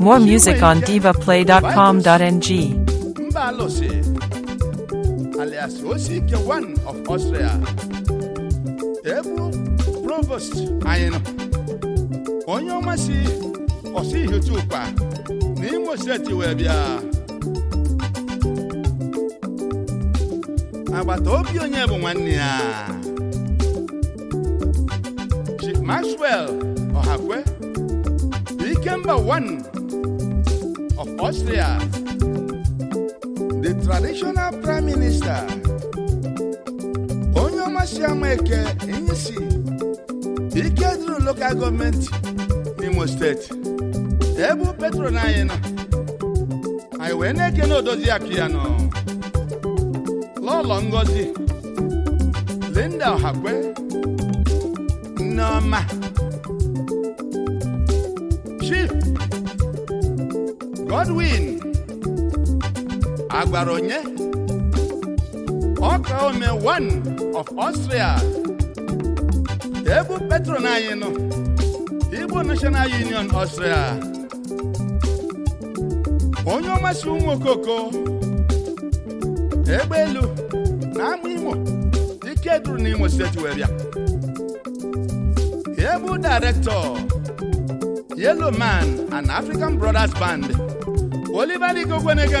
More music on divaplay.com.ng. alias Osike One of Austria, Ebu Provost anyị onye ọma si ọsị Ihechuka na Imo steeti wee bịa agbata bụ nwanne ya Maxwell Ọhakwe Ikemba one of Austria, the traditional prime minister, onye ọmasịama eke Inyisi e ike duru local gọọmenti Imo steeti ebe petro na anyị nọ eke na odozi ya piano lọlọ ngozi Linda ohakwe nneọma Chief Godwin agwara onye ọka ome one of Austria ebu petron anyị nọ Igbo National Union Austria onye ọmasị ụmụ okoko egbe elu na imo ike duru n'Imo steeti wee bịa Ebu director Yellow Man and African Brothers Band Oliver Igwe Ogweneke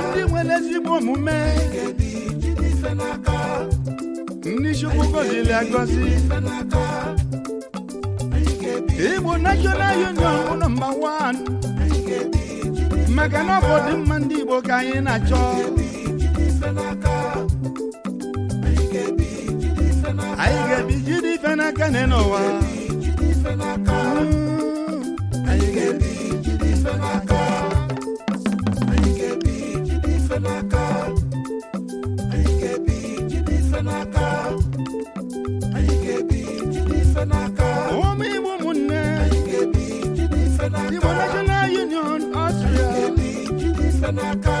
ezigbo omume ndị chukwu gọziri agọzi igbo national union bụ nọmba 1 maka na ọ bụ ndị igbo ka anyị na-achọ anyị ga-ebi jide ife n'aka n'ụwa n'aka anyị ga-ebi ga-ebi n'aka ụmụ igbo ụmụnne anyị ga-ebi Union Austria ga-ebi n'aka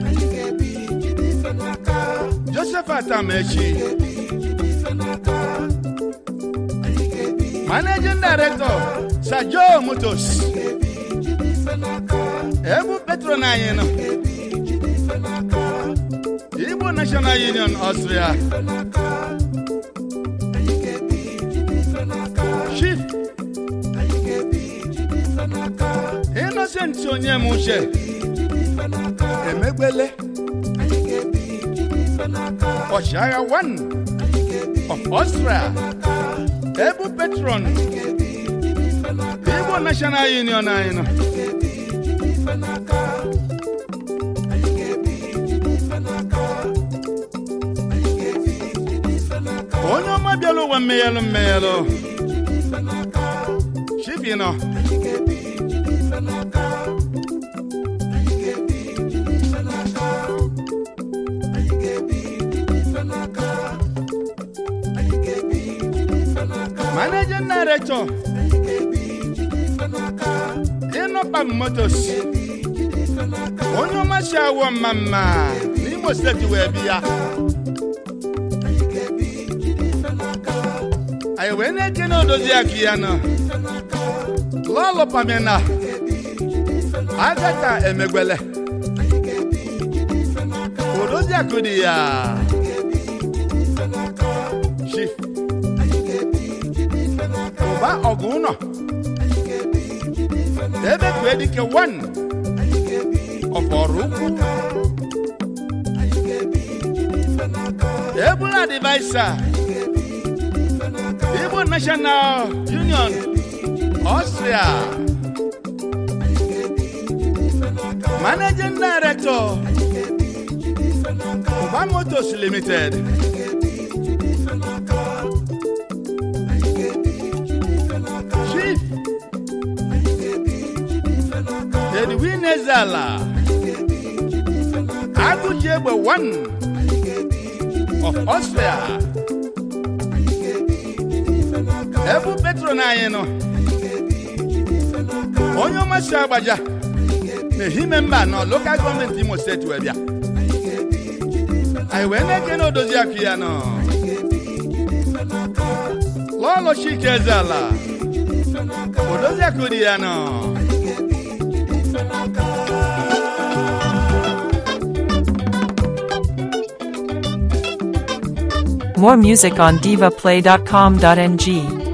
pata m managing director Sir Joe ebu petron anyị Igbo National Union Austria Chief Innocent onye m uche emegbele Oshaya One of Austria, Ebu Petron, Igbo National Union anyị nọ. onye ọma bịala ụwa mmeghelụ mmeghelụ chibi nọ managing director ịnọpa motos onye ọmasị awọ mma mma n'imo steeti wee bi ya. A na-eche na odozi aka ya nọ lọlụpamina agata emegbele odozi akụ dị ya mgba ọgụ ụnọ ebe kpue dike wan ọbọrụ ukwu ebula divaisa igbo national union ọstria managing director Oba Motos Limited. Kelvin Ezala Agụji Egbe 1 of Austria ebu petron anyị nọ onye ọmasị agbaja n'ehime mba nọ Local Government imo steeti wee bịa anyị wee na-eke na odozi akụ ya nọ lọlọ ike eze ala odozi akụ dị ya nọ More music on divaplay.com.ng.